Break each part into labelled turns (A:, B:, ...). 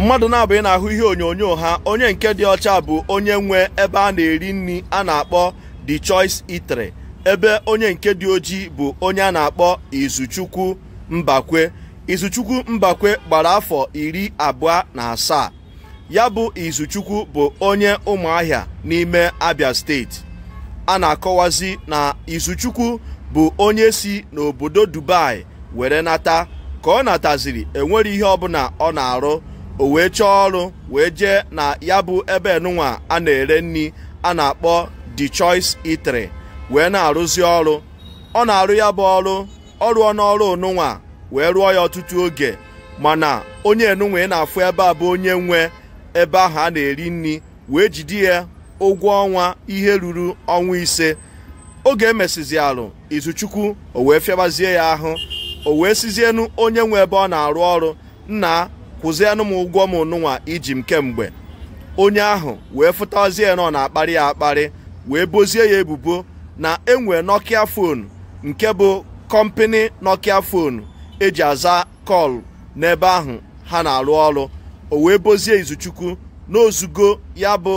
A: mmadụ na-abụghị na-ahụ ihe onyonyo ha onye nke dị ọcha bụ onye nwe ebe a na-eri nri a na-akpọ The Choice Eatery ebe onye nke dị ojii bụ onye a na-akpọ Izuchukwu Mbakwe Izuchukwu Mbakwe gbara afọ iri abụọ na asaa ya bụ Izuchukwu bụ onye Ụmụahịa n'ime Abia steeti a na-akọwazi na Izuchukwu bụ onye si n'obodo Dubai were nata ka ọ nataziri enwere ihe ọbụla ọ na-arụ o wee chọọ ọrụ wee jee na ya bụ ebe enunwa a na-ere nri a na-akpọ The Choice Eatery wee na-arụzi ọrụ ọ na-arụ ya bụ ọrụ ọ rụọ n'ọrụ onunwa wee rụọ ya ọtụtụ oge mana onye enunwa ị na-afụ ebe a bụ onye nwe ebe ahụ a na-eri nri wee jide ya ụgwọ ọnwa ihe ruru ọnwa ise oge emesizi alụ izuchukwu o wee fịabazie ya ahụ o wee sizienu onye nwe ebe ọ na-arụ ọrụ nna kwụzienụ m ụgwọ m nụnwa iji m kemgbe onye ahụ wee fụtazie nọ na-akparị ya akparị wee bozie ya ebubo na enwe nokia fon nke bụ kọmpini nokia fon eji aza kọl n'ebe ahụ ha na-arụ ọrụ o wee bozie izuchukwu n'ozugo ya bụ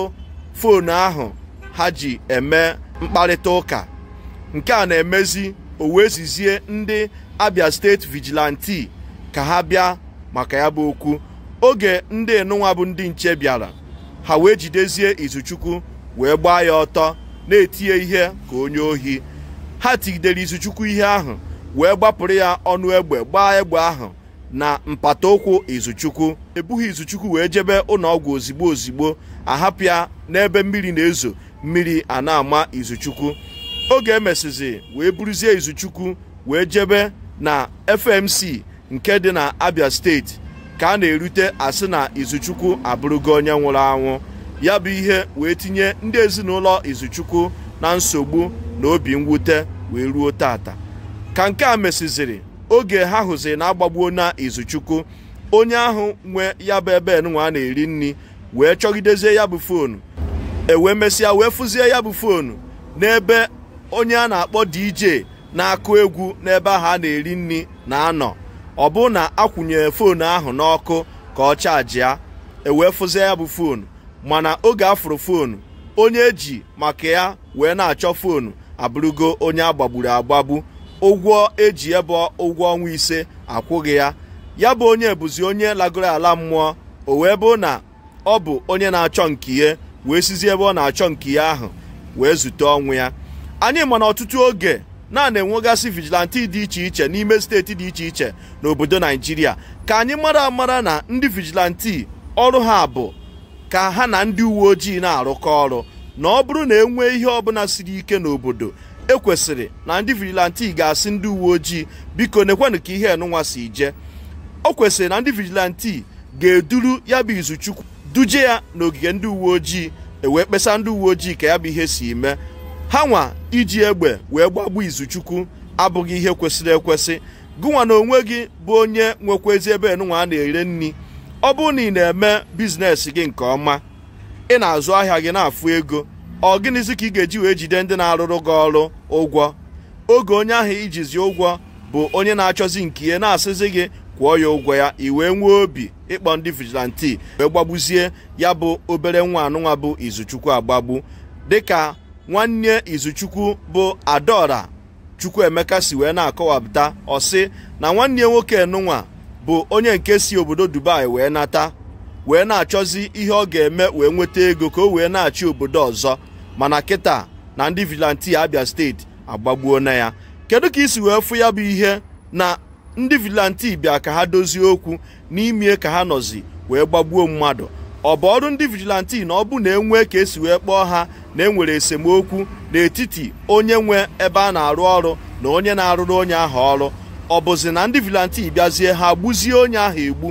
A: fon ahụ ha ji eme mkparịta ụka nke a na-emezi o wee zizie ndị abia steeti vigilante ka ha bịa maka ya bụ okwu oge ndị enunwa bụ ndị nche bịara ha wee jidezie Izuchukwu wee gbaa ya ọtọ na-etinye ihe ka onye ohi ha tigidere Izuchukwu ihe ahụ wee gbapụrụ ya ọnụ egbe gbaa egbe ahụ na mpata ụkwụ Izuchukwu ebughị Izuchukwu wee jebe ụlọọgwụ ozigbo ozigbo ahapụ ya n'ebe mmiri na-ezo mmiri a na-ama Izuchukwu oge emesizi wee buruzie Izuchukwu wee jebe na FMC nke dị na abia steeti ka a na-erute asị na izuchukwu abụrụgo onye nwụrụ anwụ ya bụ ihe wee tinye ndị ezinụlọ izuchukwu na nsogbu na obi mwute wee ruo tata ka nke a mesiziri oge ha hụziri na agbagbuo na izuchukwu onye ahụ nwe ya bụ ebe nwa na-eri nri wee chọgidezie ya bụ foonu ewee mesịa wee fụzie ya bụ foonu n'ebe onye a na-akpọ DJ na-akụ egwu n'ebe ahụ a na-eri nri na-anọ ọ bụ na akwụnyere foonu ahụ n'ọkụ ka ọ e ya fụzie ya bụ foonu mana oge afụrụ fonu onye eji maka ya wee na-achọ foonu abụrụgo onye agbagburu agbagbu ụgwọ eji ebe ụgwọ ọnwa ise akwụghị ya ya bụ onye ebuzi onye lagoro ala mmụọ o wee bụ na ọ bụ onye na-achọ nke ihe wee sizi ebe ọ na-achọ nke ihe ahụ wee zute ọnwụ ya anyị ma na ọtụtụ oge naanị na-enwegasị vigilanti dị iche iche n'ime steeti dị iche iche n'obodo naijiria ka anyị mara amara na ndị vigilante ọrụ ha bụ ka ha na ndị uwe ojii na-arụkọ ọrụ na ọ bụrụ na e nwee ihe ọbụla siri ike n'obodo ekwesịrị na ndị vigilante ga-asị ndị uwe ojii biko nekwenụ ka ihe enụnwa si je o kwesịrị na ndị vigilante ga-eduru ya bụ izuchukwu duje ya n'ogige ndị uwe ojii ewee kpesa ndị uwe ojii ka ya bụ ihe si mee ha nwa iji egbe wee gbagbu izuchukwu abụghị ihe kwesịrị ekwesị gụnwa na onwe gị bụ onye nwekwezi ebe nụnwa a na-ere nri ọ bụrụ na ị na-eme biznes gị nke ọma ị na-azụ ahịa gị na-afụ ego ọ gịnịzi ka ị ga-eji wee jide ndị na-arụrụ gị ọrụ ụgwọ oge onye ahụ ijizi ụgwọ bụ onye na-achọzi nke ihe na-asịzi gị kwụọ ya ụgwọ ya i wee nwee obi ịkpọ ndị vigilante wee gbagbuzie ya bụ obere nwa anụnwa bụ izuchukwu agbagbu dịka nwanne izuchukwu bụ adaora emeka si wee na-akọwapụta ọsị na nwanne nwoke nụnwa bụ onye nke si obodo dubai wee nata wee na-achọzi ihe ọ ga-eme wee nweta ego ka o wee na-achị obodo ọzọ mana kịta na ndị vilanti abia steeti agbagbuo na ya kedu ka isi wee fụ ya bụ ihe na ndị vilanti bịa ka ha dozie okwu n'imie ka ha nọzi wee gbagbuo mmadụ ọ bụ ọrụ ndị vigilanti na ọ bụ na enwe ka esi wee kpọọ ha na enwere esemokwu n'etiti onye nwe ebe a na-arụ ọrụ na onye na-arụrụ onye ahụ ọrụ ọ bụzi na ndị vigilanti bịazie ha gbuzie onye ahụ egbu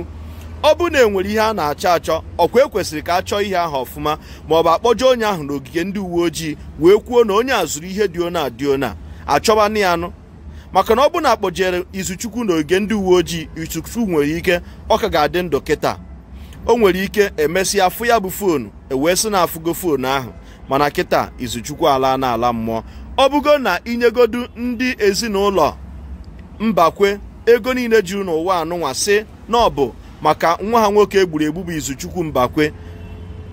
A: ọ bụ na enwere ihe a na-achọ achọ ọkwa ekwesịrị ka a chọọ ihe ahụ ọfụma ma ọ bụ akpọjọ onye ahụ n'ogige ndị uwe ojii wee kwuo na onye a zụrụ ihe dị ona a ona achọbanụ ya nụ maka na ọ bụ na akpọjere Izuchukwu n'ogige ndị uwe ojii Izuchukwu nwere ike ọ ka ga-adị ndụ kịta o nwere ike emesịa afụ ya bụ foonu ewee sị na afụgo foonu ahụ mana kịta izuchukwu ala n'ala mmụọ ọ bụgo na inyegodu ndị ezinụlọ mbakwe ego niile juru n'ụwa anụnwa sị na ọ bụ maka nwa ha nwoke egburu egbu bụ izuchukwu mbakwe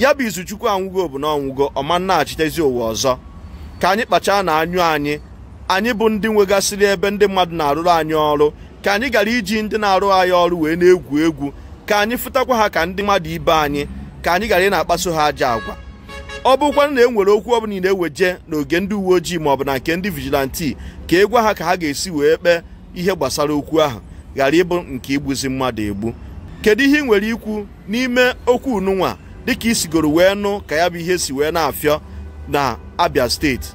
A: ya bụ izuchukwu anwụgo bụ na ọnwụgo ọma nnaghachitezi ụwa ọzọ ka anyị kpachaa na anyụ anyị anyị bụ ndị nwegasịrị ebe ndị mmadụ na-arụrụ anyị ọrụ ka anyị gara iji ndị na-arụ anyị ọrụ wee na-egwu egwu ka anyị fụtakwa ha ka ndị mmadụ ibe anyị ka anyị ghara ị na-akpaso ha aja agwa ọ bụkwanụ na e nwere okwu ọbụla ị na-eweje n'oge ndị uwe ojii maọbụ na nke ndị vigilanti ka e gwa ha ka ha ga-esi wee kpee ihe gbasara okwu ahụ ghara ịbụ nke igbuzi mmadụ egbu kedu ihe ị nwere ikwu n'ime okwu ununwa dịka isigoro wee nụ ka ya bụ ihe si wee na-afịọ na Abia steeti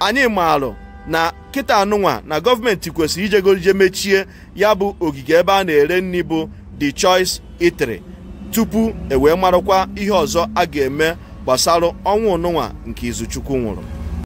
A: anyị maalụ na kịta anụnwa na gọọmenti kwesịrị ijegorije mechie ya bụ ogige ebe a na-ere nri bụ the choice itali tupu e wee marakwa ihe ọzọ a ga-eme gbasara ọnwụ ụnụnwa nke Izuchukwu nwụrụ